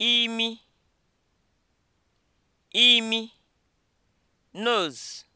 imi imi nose